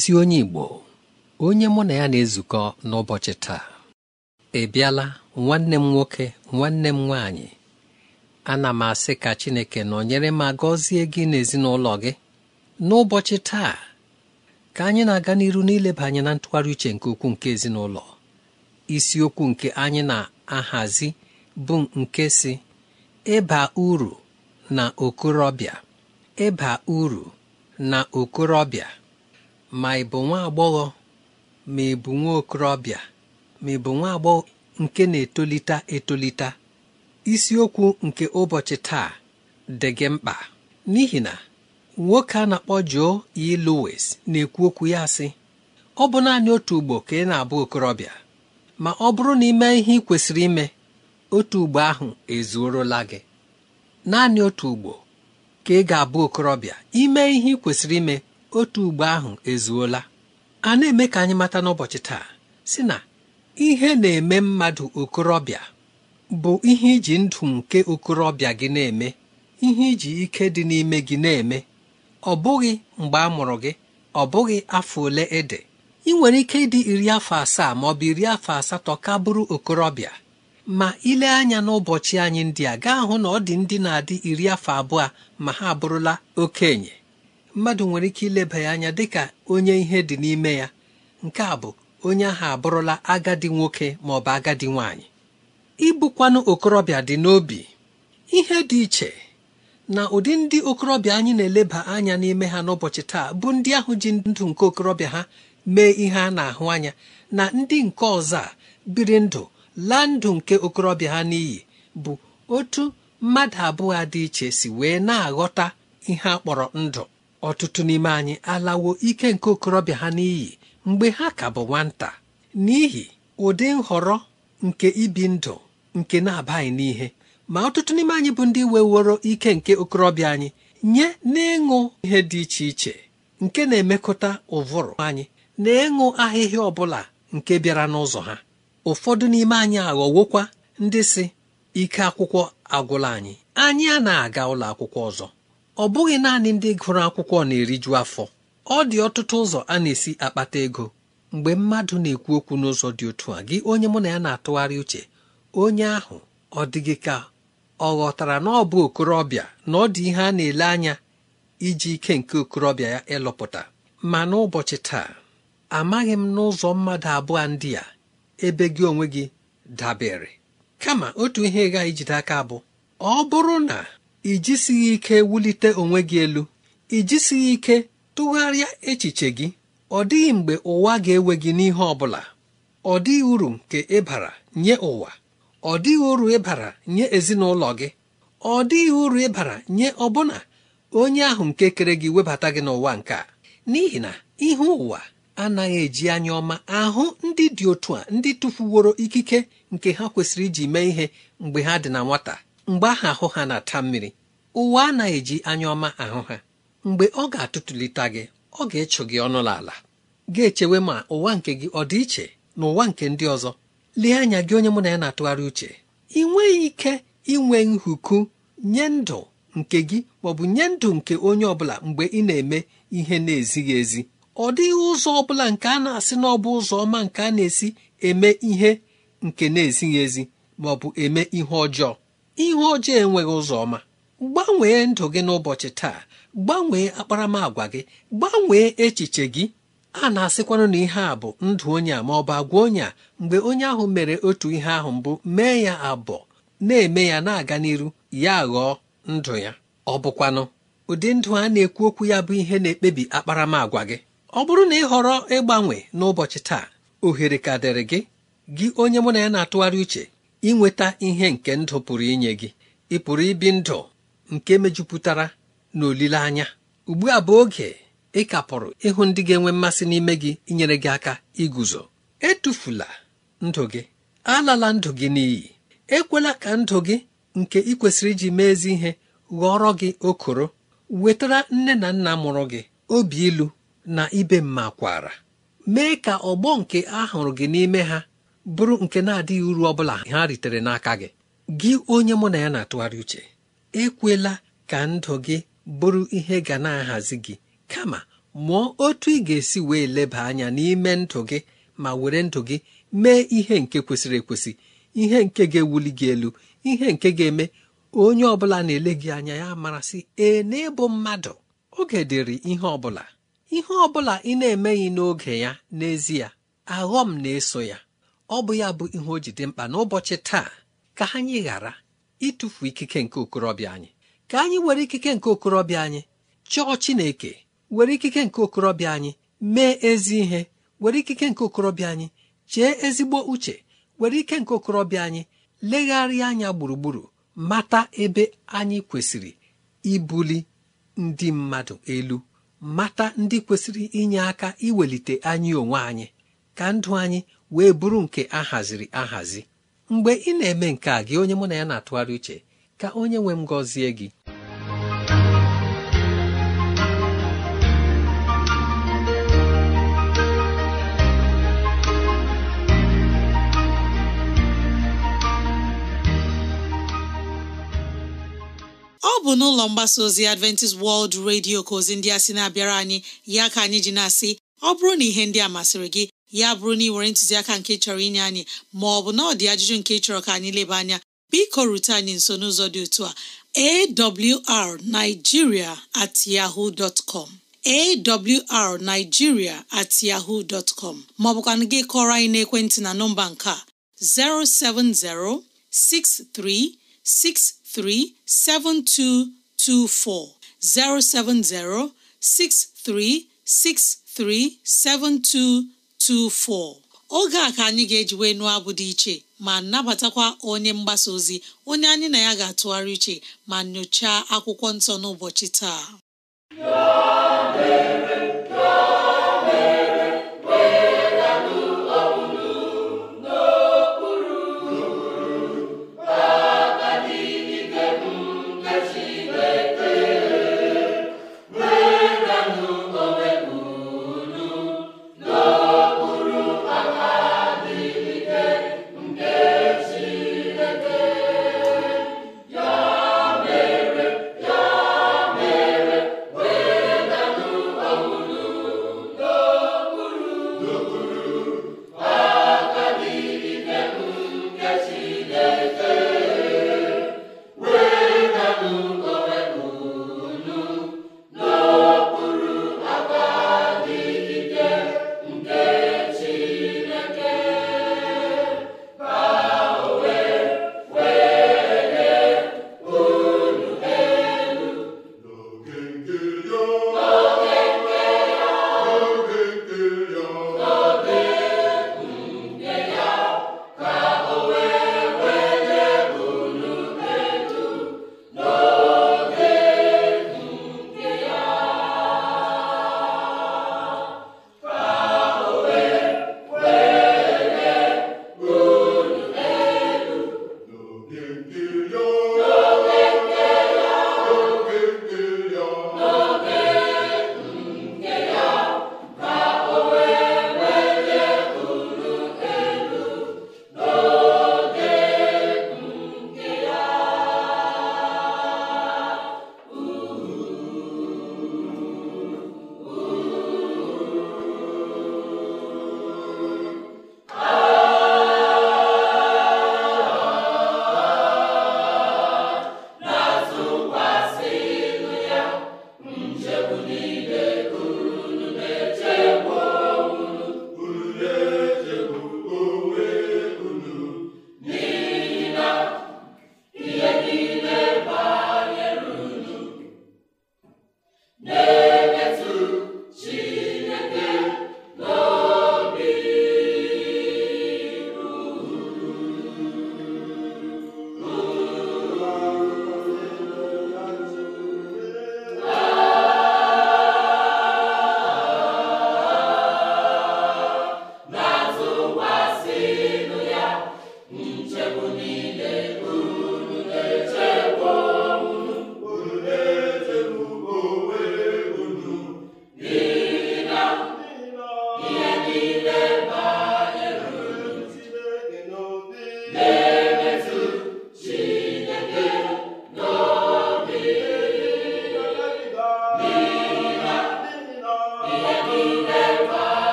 ezi onye Igbo onye mụ na ya na-ezukọ n'ụbọchị taa ị bịala nwanne m nwoke nwanne m nwaanyị ana m asị ka Chineke nọnyere ma gọzie gị n'ezinụlọ gị n'ụbọchị taa ka anyị na-aga n'iru n'ileba anya na ntụgharị uche nke ukwuu nke ezinụlọ isiokwu nke anyị na-ahazi bụ nke si ịba uru na okorobịa ịba uru na okorobịa ma ị bụ nwa agbọghọ ma ị bụ nwa okorobịa ma ị bụ nwa agbọghọ nke na-etolite etolite isiokwu nke ụbọchị taa dị gị mkpa n'ihi na nwoke a na-akpọ Joe E. Lowes na-ekwu okwu ya sị ọ bụ naanị otu ugbo ka ị na-abụ okorobịa ma ọ bụrụ na ime ihe ị kwesịrị ime otu ugbo ahụ ezuorola gị naanị otu ugbo ka ị ga-abụ okorobịa ime ihe ị kwesịrị ime otu ugbo ahụ ezuola a na-eme ka anyị mata n'ụbọchị taa si na ihe na-eme mmadụ okorobịa bụ ihe iji ndụ nke okorobịa gị na-eme ihe iji ike dị n'ime gị na-eme ọ bụghị mgbe a mụrụ gị ọ bụghị afọ ole ede ị nwere ike ịdị iri afọ asaa ma ọ bụ iri afọ asatọ ka bụrụ okorobịa ma ile anya n'ụbọchị anyị ndị a gaa hụ na ọ dị ndị na-adị iri afọ abụọ ma ha abụrụla okenye mmadụ nwere ike ileba ya anya dị ka onye ihe dị n'ime ya nke a bụ onye ahụ abụrụla agadi nwoke ma ọ bụ agadi nwanyị ịbụkwanụ okorobịa dị n'obi ihe dị iche na ụdị ndị okorobịa anyị na-eleba anya n'ime ha n'ụbọchị taa bụ ndị ahụ ji ndụ nke okorobịa ha mee ihe a na-ahụ anya na ndị nke ọzọ a biri ndụ laa ndụ nke okorobịa ha n'iyi bụ otu mmadụ abụọ dị iche si wee na-aghọta ihe a kpọrọ ndụ ọtụtụ n'ime anyị alawo ike nke okorobịa ha n'iyi mgbe ha ka bụ nwata n'ihi ụdị nhọrọ nke ibi ndụ nke na-abaghị n'ihe ma ọtụtụ n'ime anyị bụ ndị weworo ike nke okorobịa anyị nye n'ịṅụ ihe dị iche iche nke na-emekọta ụvụrụ anyị na ịṅụ ahịhịa ọbụla nke bịara n'ụzọ ha ụfọdụ n'ime anyị aghọwokwa ndị si ike akwụkwọ agwụla anyị anyị a na-aga ụlọ akwụkwọ ọzọ ọ bụghị naanị ndị gụrụ akwụkwọ na-eriju afọ ọ dị ọtụtụ ụzọ a na-esi akpata ego mgbe mmadụ na-ekwu okwu n'ụzọ dị otu a gị onye mụ na ya na-atụgharị uche onye ahụ ọ dịghị ka ọ ghọtara na ọ bụ okorobịa na ọ dị ihe a na-ele anya iji ike nke okorobịa ya ịlụpụta ma n'ụbọchị taa amaghị m n'ụzọ mmadụ abụọ ndị a ebe gị onwe gị dabere kama otu ihe gaghị jide aka bụ ọ bụrụ na ị ike wulite onwe gị elu ị ike tụgharịa echiche gị ọ dịghị mgbe ụwa ga-ewe gị n'ihe ọ bụla ọ dịghị uru nke ịbara nye ụwa ọ dịghị uru ịbara nye ezinụlọ gị ọ dịghị uru ịbara nye ọbụna onye ahụ nke kere gị webata gị n'ụwa nke a n'ihi na ihe ụwa anaghị eji anya ọma ahụ ndị dị otu a ndị tụfuworo ikike nke ha kwesịrị iji mee ihe mgbe ha dị na nwata mgbe ahụ ahụ ha na-ata mmiri ụwa anaghị eji anya ọma ahụ ha mgbe ọ ga-atụtụlite gị ọ ga-echụ gị ọnụ ala ga-echewe ma ụwa nke gị ọ dị iche na ụwa nke ndị ọzọ lee anya gị onye mụ na ya na-atụgharị uche ị nweghị ike inwe nhuku nye ndụ nke gị maọbụ nye ndụ nke onye ọbụla mgbe ị na-eme ihe na-ezighị ezi ọ dịghị ụzọ ọbụla nke a na-asị na ọ bụ ụzọ ọma nke a na-esi eme ihe nke na-ezighị ezi maọbụ eme ihe ọjọọ ihe ojii enweghị ụzọ ọma gbanwee ndụ gị n'ụbọchị taa gbanwee akparamagwa gị gbanwee echiche gị a na-asịkwanụ na ihe a bụ ndụ onye a ma ọ bụ agwa onye a mgbe onye ahụ mere otu ihe ahụ mbụ mee ya abụọ na-eme ya na-aga n'iru ya ghọọ ndụ ya ọ bụkwanụ ụdị ndụ a na-ekwu okwu ya bụ ihe na-ekpebi akparamagwa gị ọ bụrụ na ị họrọ ịgbanwe n'ụbọchị taa ohere ka dịrị gị gị onye mụ na ya na-atụgharị uche inweta ihe nke ndụ pụrụ inye gị ị pụrụ ibi ndụ nke mejupụtara na olileanya ugbu a bụ oge ị kapụrụ ịhụ ndị ga-enwe mmasị n'ime gị inyere gị aka iguzo etufula ndụ gị alala ndụ gị n'iyi ekwela ka ndụ gị nke ị kwesịrị iji mee ihe ghọrọ gị okoro wetara nne na nna mụrụ gị obi ilu na ibe mma kwara mee ka ọgbọ nke a hụrụ gị n'ime ha bụrụ nke na-adịghị uru ọ bụla ha ritere n'aka gị gị onye mụ na ya na-atụgharị uche ekwela ka ndụ gị bụrụ ihe ga na-ahazi gị kama mụọ otu ị ga-esi wee leba anya n'ime ndụ gị ma were ndụ gị mee ihe nke kwesịrị ekwesị ihe nke ga-ewuli gị elu ihe nke ga-eme onye ọ bụla na-ele gị anya ya marasị ee n'ịbụ mmadụ oge dịrị ihe ọbụla ihe ọbụla ị na-emeghị n'oge ya n'ezie aghọm na-eso ya ọ bụ ya bụ ihe o jide mkpa n'ụbọchị taa ka anyị ghara ịtụfu ikike nke okorobịa anyị ka anyị were ikike nke okorobịa anyị chọọ Chineke were ikike nke okorobịa anyị mee ezi ihe were ikike nke okorobịa anyị chee ezigbo uche were ike nke okorobịa anyị legharịa anya gburugburu mata ebe anyị kwesịrị ibuli ndị mmadụ elu mata ndị kwesịrị inye aka iwelite anyị onwe anyị ka ndụ anyị wee bụrụ nke ahaziri ahazi mgbe ị na-eme nke a gị onye mụ na ya na-atụgharị uche ka onye nwe m gọzie gị ọ bụ n'ụlọ mgbasa ozi Adventist World Radio ka ozi ndị a sị na-abịara anyị ya ka anyị ji na-asị ọ bụrụ na ihe ndị a masịrị gị ya bụrụ na ị nwere ntụziaka nke chọrọ inye anyị ma ọ bụ na ọ dị ajụjụ nke chọrọ ka anyị leba anya biko rute anyị nso n'ụzọ dị otu a awrnigeria at yahoo dot com awrnigeria at yahoo dot com maọbụkwanụ gị kọrọ anyị n'ekwentị na nọmba nke a 07063637224 07063637224 24 oge a ka anyị ga-eji wee nụọ abụ dị iche ma nabatakwa onye mgbasa ozi onye anyị na ya ga-atụgharị iche ma nyochaa akwụkwọ nsọ n'ụbọchị taa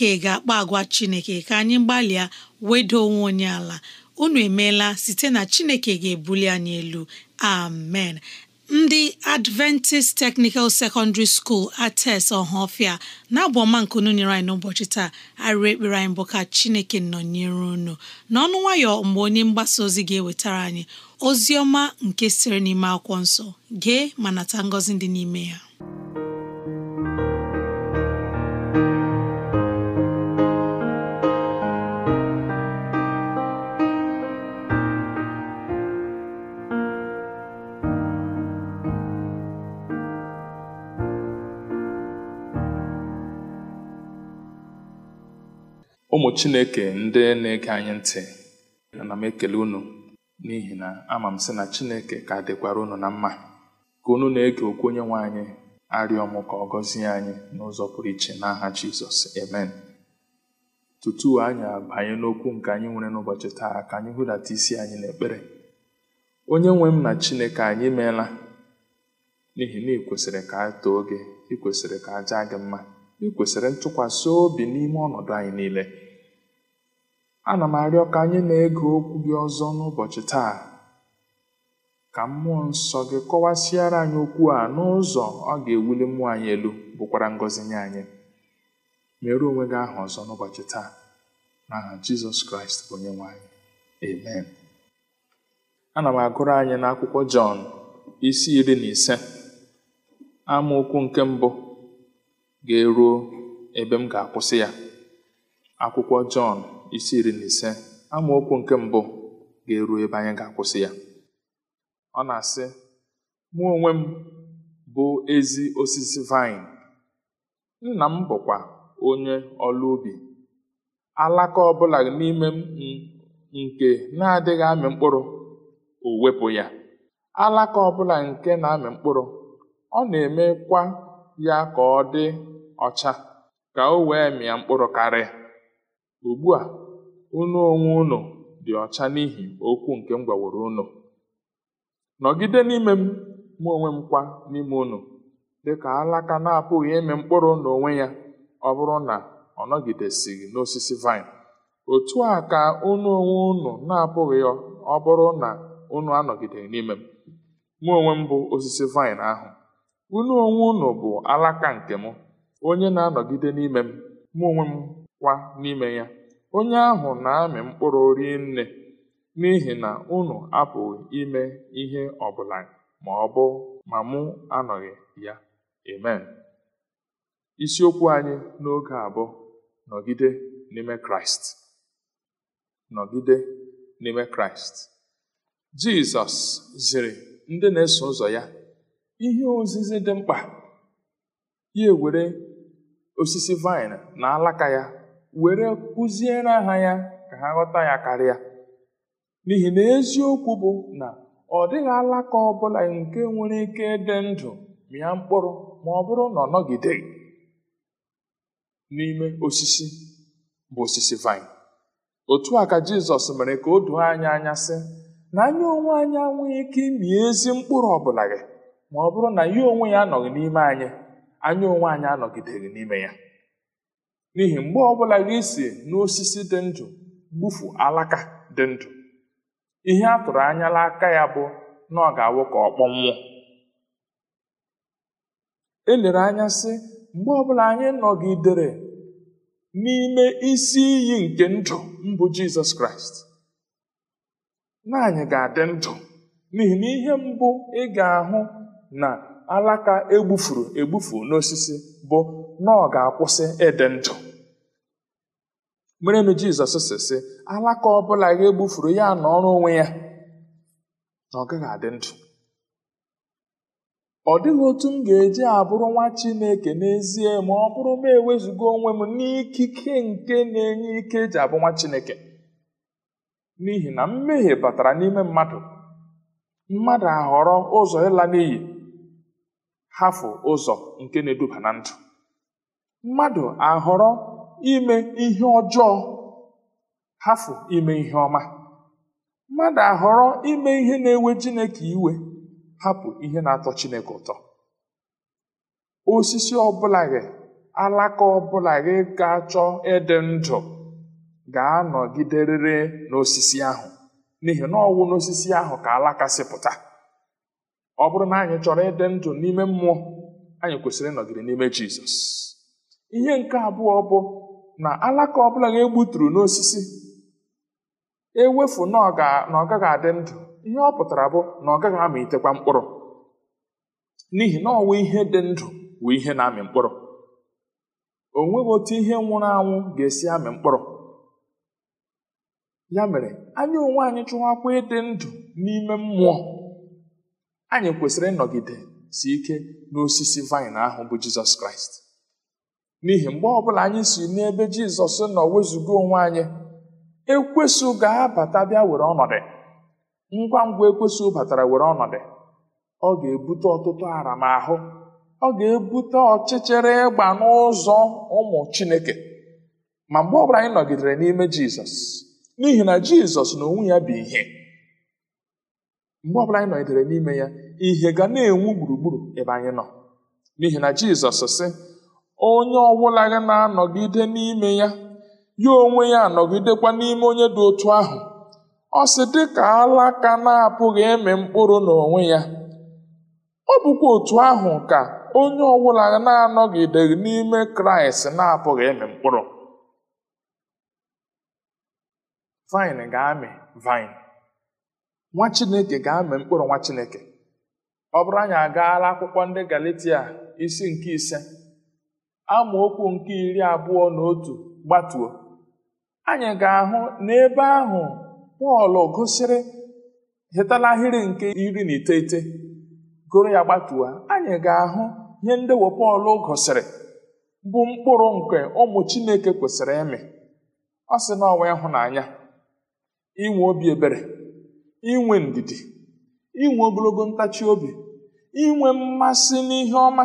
Chineke ga-akpa agwa Chineke ka anyị gbalịa wedo onwe onye ala unu emeela site na Chineke ga-ebuli anyị elu amen ndị Adventist Technical Secondary School ates ọhafịa na-abụ ọma nkunu nyere anyị n'ụbọchị taa arịrị ekpere anyị bụ ka Chineke nọnyere unu n'ọnụ nwayọ mgbe onye mgbasa ozi ga-ewetara anyị ozi ọma nke siri n'ime akwụkwọ nsọ gee ma nata ngozi dị n'ime ya chineke ndị na-ege anyị ntị ana m ekele unu n'ihi na ama m sị na chineke ka dịkwara unu na mma ka unu na-ege okwu onye nwe anyị arịọ m ka ọ gọzie anyị n'ụzọ pụrụ iche n'aha jizọs emen tutu anyị abanye n'okwu nke anyị nwere n'ụbọchị taa ka anyị hụdata isi anyị n'ekpere onye nwe m na chineke anyị meela n'ihi na ị kwesịrị ka a too gị ị kwesịrị ka a jaa gị mma ịkwesịrị ntụkwasị obi n'ime ọnọdụ anyị niile ana m arịọ ka anyị na-ege okwu gị ọzọ n'ụbọchị taa ka mmụọ nsọ gị kọwasịara anyị okwu a n'ụzọ ọ ga-ewuli mmụọ anyị elu bụkwara ngọzi nye anyị mere onwe gị aha ọzọ n'ụbọchị taa n'aha jizọs kraịst bụ onye nwanyị. amen ana m agụrụ anyị n'akwụkwọ jọn isi iri na ise amaokwu nke mbụ ga-eruo ebe m ga-akwụsị ya akwụkwọ jọn isi iri na ise amaokwu nke mbụ ga-eru ebe anyị ga-akwụsị ya ọ na-asị mụ onwe m bụ ezi osisi vine. nna m bụkwa onye ọrụ ubi alaka ọbụla n'ime m nke na-adịghị amị mkpụrụ o wepụ ya alaka ọbụla nke na-amị mkpụrụ ọ na-emekwa ya ka ọ dị ọcha ka o wee mịa mkpụrụ karịa ugbu a unu onwe unu dị ọcha n'ihi okwu nke m gwaworo unu nọgide n'ime m mụ onwe m kwa n'ime unu dịka alaka na-apụghị ime mkpụrụ n'onwe ya ọ bụrụ na ọ nọgidesighị n'osisi vaịn otu a ka unu onwe unu na-apụghị ọ bụrụ na unu anọgideghị n'ime m mụ onwe m bụ osisi vaịn ahụ unu onwe unu bụ alaka nke m onye na-anọgide n'ime m mụ onwe m kwa n'ime ya onye ahụ na-amị mkpụrụ nne n'ihi na unu apụghị ime ihe ọbụla ma ọ bụ ma mụ anọghị ya. Amen. Isiokwu anyị n'oge abụọ bụ nọgide n'ime Kraịst. Nọgide n'ime Kraịst. Jizọs ziri ndị na-eso ụzọ ya ihe ozizi dị mkpa ya ewere osisi vaịn na alaka ya were kụziere ha ya ka ha ghọta ya karịa n'ihi na eziokwu bụ na ọ dịghị alaka ọbụla nke nwere ike ịdị ndụ mịa mkpụrụ ma ọ bụrụ na ọ nọgideghị n'ime osisi bụ osisi vaịn otu a ka jizọs mere ka o doo anya anya sị na anyị onwe anyị anwụghị ike ịmị ezi mkpụrụ ọbụla gị ma ọ bụrụ na ya onwe ya anọghị n'ime anyị anyị onwe anyị anọgideghị n'ime ya n'ihi mgbe ọbụla gị si n'osisi dị ndụ gbufu alaka dị ndụ ihe a tụrụ anya n'aka ya bụ na ọ ga-awụ ka ọ kpọnwụọ elere anya sị mgbe ọbụla anyị nọgidere n'ime isi iyi nke ndụ mbụ jizọs kraịst naanị ga-adị ndụ n'ihi na ihe mbụ ị ga-ahụ na alaka egbufuru egbufu n'osisi bụ na ọ ga-akwụsị ịdị ndụ merenụ jizọs si si, alaka ọbụla ga-egbufuru ya na ọrụ onwe ya na ọ gaghị adị ndụ ọ dịghị otu m ga-eji abụrụ nwa chineke n'ezie ma ọ bụrụ m ewezuga onwe m n'ikike nke na-enye ike eji abụ nwa chineke n'ihi na mmehie batara n'ime mmadụ mmadụ ahọrọ ụzọ ịla n'iyi hafụ ụzọ nke na-eduba na ndụ mmadụ ahọrọ ime ihe ọjọọ hafụ ime ihe ọma mmadụ ahọrọ ime ihe na-ewe jineke iwe hapụ ihe na-atọ Chineke ụtọ osisi ọbụla gị alaka ọbụla gị ga-achọ ịdị ndụ ga-anọgiderịrị n'osisi ahụ n'ihi na ọwụ n'osisi ahụ ka alaka si ọ bụrụ na anyị chọrọ ịdị ndụ n'ime mmụọ anyị kwesịrị ịnọgide n'ime Jizọs ihe nke abụọ bụ na alaka ọbụla a egbuturu n'osisi ewefu na ọ gaghị adị ndụ ihe ọ pụtara bụ na ọ gaghị itekwa mkpụrụ n'ihi na ọnwa ihe dị ndụ bụ ihe na-amị mkpụrụ o nweghị otu ihe nwụrụ anwụ ga-esi amị mkpụrụ ya mere anya onwe anyị chụwakwa ịdị ndụ n'ime mmụọ anyị kwesịrị ịnọgide si ike n'osisi vaịn ahụ bụ jizọs kraịst n'ihi mgbe ọbụla anyị si n'ebe jizọs nọ wezụga onwe anyị ekwesụ ga-abata bịa were ọnọdụ ngwa ngwa ekwesụ batara were ọnọdụ ọ ga-ebute ọtụtụ aramahụ ọ ga-ebute ọchịchịrị ịgba n'ụzọ ụmụ chineke ma mgbe ọbụla anyị nọgidere n'ime jizọs n'ihi na jizọs na onwe ya bụ ihe mgbe ọbụla anyị nọgidere n'ime ya ihe ga na-enwu gburugburu ebe anyị nọ n'ihi na jizọs sị onye ọbụla gị na-anọgide n'ime ya ya onwe ya anọgidekwa n'ime onye dị otu ahụ ọ sị dị ka alaka na-apụghị ịmị mkpụrụ n'onwe ya ọ bụkwa otu ahụ ka onye ọbụla na-anọgideghị n'ime kraịst na-apụghị ịmị mkpụrụ vin ga-amị vine nwa chineke ga-amị mkpụrụ nwa chineke ọ bụrụ anyị agaala akwụkwọ ndị galatia isi nke ise amaokwu nke iri abụọ na otu gbatuo anyị ga-ahụ n'ebe ahụ Pọl gosiri hetala ahịrị nke iri na iteghete goro ya gbatuo anyị ga-ahụ ihe ndewo Pọl gosiri bụ mkpụrụ nke ụmụ Chineke kwesịrị ịmị ọ sị na ọnwa ịhụnanya inwe obi ebere inwe ndidi inwe ogologo ntachi obi inwe mmasị n'ihe ọma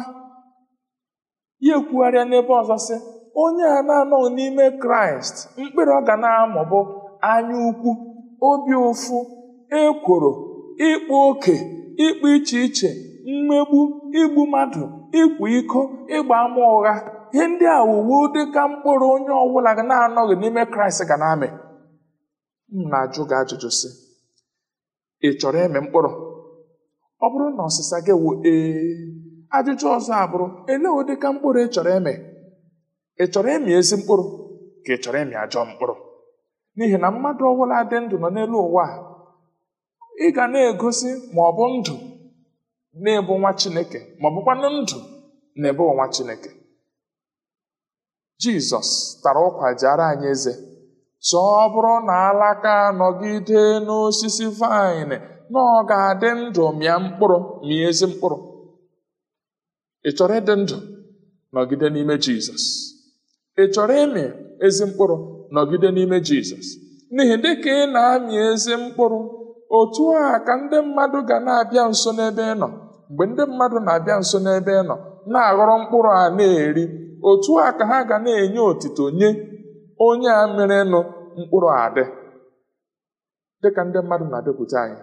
ya ekwugharịa n'ebe ọzọ sị onye a na-anọghị n'ime kraịst mkpịrị ọ ga na-amụ bụ anya ukwu obi ụfụ ekworo ịkpa oke ịkpa iche iche mmegbu igbu mmadụ ịkwa iko ịgba ama ụgha ihe ndị a dị ka mkpụrụ onye ọbụla ga na-anọghị n'ime kraịst ga na-amị m na-ajụ ajụjụ sị ị chọrọ ịmị mkpụrụ ọ bụrụ na ọsịsa gị wụ ee ajụjụ ọzọ abụrụ ele ụdị ka mkpụrụ ị chọrọ eme ị chọrọ ịmị ezi mkpụrụ ka ị chọrọ ịmị ajọ mkpụrụ n'ihi na mmadụ ọbụla dị ndụ nọ n'elu ụwa ị ga na-egosi ma ọ bụ ndụ na-ebu nwa chineke ma ọ bụkwanụ ndụ na-ebu nwa chineke jizọs tara ụkwa ara anyị eze sọ ọ bụrụ na alaka nọgide n'osisi vaịn na ọ ga-adị ndụ mịa mkpụrụ mịa ezi mkpụrụ ị chọrọ ịdị ndụ nọgide n'ime jizọs ị chọrọ ịmị ezi mkpụrụ nọgide n'ime jizọs n'ihi dị ka ị na-amị ezi mkpụrụ otu a ka ndị mmadụ ga na-abịa nso n'ebe ị nọ mgbe ndị mmadụ na-abịa nso n'ebe ị nọ na-aghọrọ mkpụrụ a na-eri otu a ka ha ga na-enye otito nye onye a nụ mkpụrụ adị dịka ndị mmadụ na-abịakwute anyị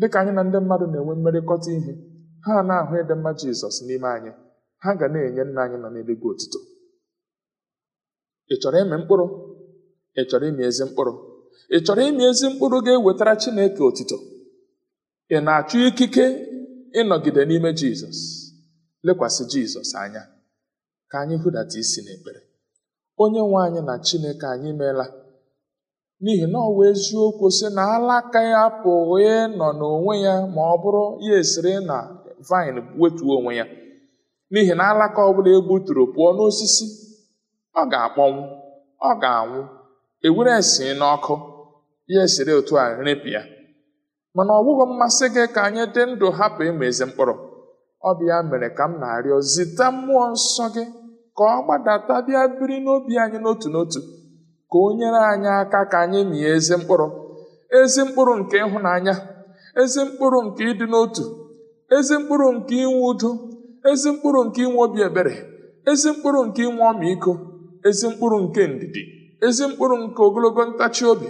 dịka anyị na ndị mmadụ na-enwe mmerịkọta ihe ha na-ahụ ịdị mma jizọs n'ime anyị ha ga na-enye nna anyị nọ n'eluigwe otito ị chọrọ ịmị mkpụrụ ị chọrọ ịmị ezi mkpụrụ ị chọrọ ịmị ezi mkpụrụ ga-ewetara chineke otito ị na-achọ ikike ịnọgide n'ime jizọs lekwasị jizọs anya ka anyị hụdata isi n'ekpere onye nwe anyị na chineke anyị meela n'ihi na ọwa eziokwu si na alaka ya pụghị nọ n'onwe ya ma ọ bụrụ ya esiri na vaịn wetuo onwe ya n'ihi na alaka ọ bụla egbuturu pụọ n'osisi ọ ga-akpọnwụ ọ ga-anwụ ewere esi n'ọkụ ya esiri otu a ya mana ọ bụghị mmasị gị ka anyị dị ndụ hapụ ịma ezi mkpụrụ ọ bụ ya mere ka m na-arịọ zite mmụọ nsọ gị ka ọ gbadata bịa biri n'obi anyị n'otu n'otu ka o nyere anyị aka ka anyị mịa ezi mkpụrụ ezi mkpụrụ nke ịhụnanya ezi mkpụrụ nke ịdị n'otu ezi mkpụrụ nke inwe udo ezi mkpụrụ nke inwe obi ebere ezi mkpụrụ nke inwe ọmịiko ezi mkpụrụ nke ndidi ezi mkpụrụ nke ogologo ntachi obi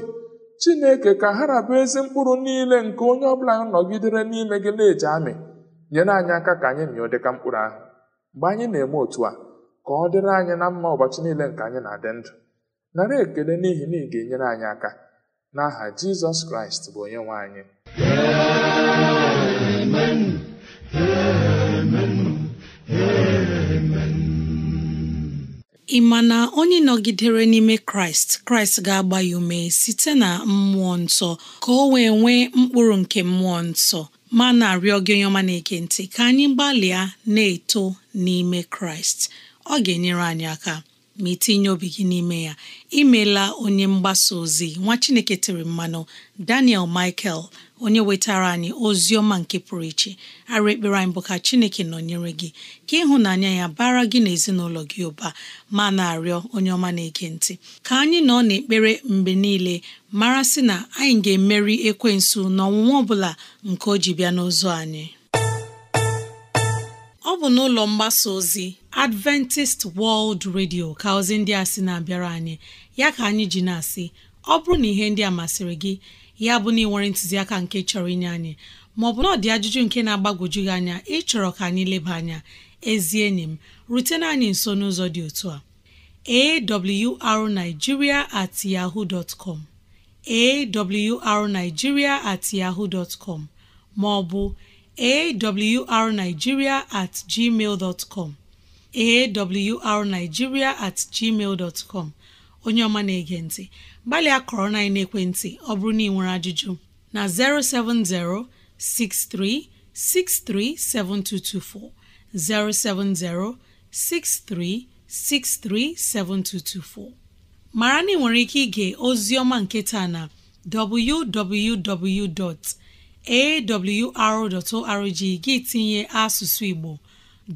chineke ka ha rabụ ezi mkpụrụ niile nke onye ọbụla nọgidere n'ime gị na-eji amị nyere anyị aka ka anyị mịọ dịka mkpụrụ ahụ mgbe anyị na-eme otu a ka ọ dịrị anyị na mma ụbọchị niile nke anyị na-adị ndụ nara ekele n'ihi na ị ga-enyere anyị aka n'aha Jizọs Kraịst bụ onye nwe anyị ị ma na onye nọgidere n'ime kraịst kraịst ga-agba ya ume site na mmụọ nsọ ka o wee nwee mkpụrụ nke mmụọ nsọ ma na-arịọ gị onye ọma na-eke ntị ka anyị gbalịa na-eto n'ime kraịst ọ ga-enyere anyị aka ma itinye obi gị n'ime ya imela onye mgbasa ozi nwa chineke tiri mmanụ daniel michael onye wetara anyị ozi ọma nke pụrụ iche arụ ekpere anyị bụ ka chineke nọnyere gị ka ịhụnanya ya bara gị na ezinụlọ gị ụba ma na-arịọ onye ọma na-ege ntị ka anyị nọ n'ekpere mgbe niile mara sị na anyị ga-emeri ekwensu na ọ bụla nke o ji bịa n'ụzọ anyị ọ bụ n'ụlọ mgbasa ozi Adventist World Radio ka ozi ndị a sị na-abịara anyị ya ka anyị ji na-asị ọ bụrụ na ihe ndị a masịrị gị ya bụ na ịnwere ntụziaka nke chọrọ inye anyị maọbụ na ọ dị ajụjụ nke na-agbagwoju gị anya ịchọrọ ka anyị leba anya ezi enyi m rutena anyị nso n'ụzọ dị otu a awrnigeria at yahoo dot com at yahoo dot com maọbụ awrnigeria at gmail dot com at gmail dot onye ọma na-ege ntị gbalịa kọrọ na ekwentị ọ bụrụ na ị nwere ajụjụ na 070 6363 7224 070 6363 7224 mara na ị nwere ike ige ozi ọma nke taa na www.awr.org gị tinye asụsụ Igbo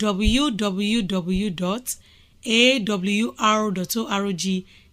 www.awr.org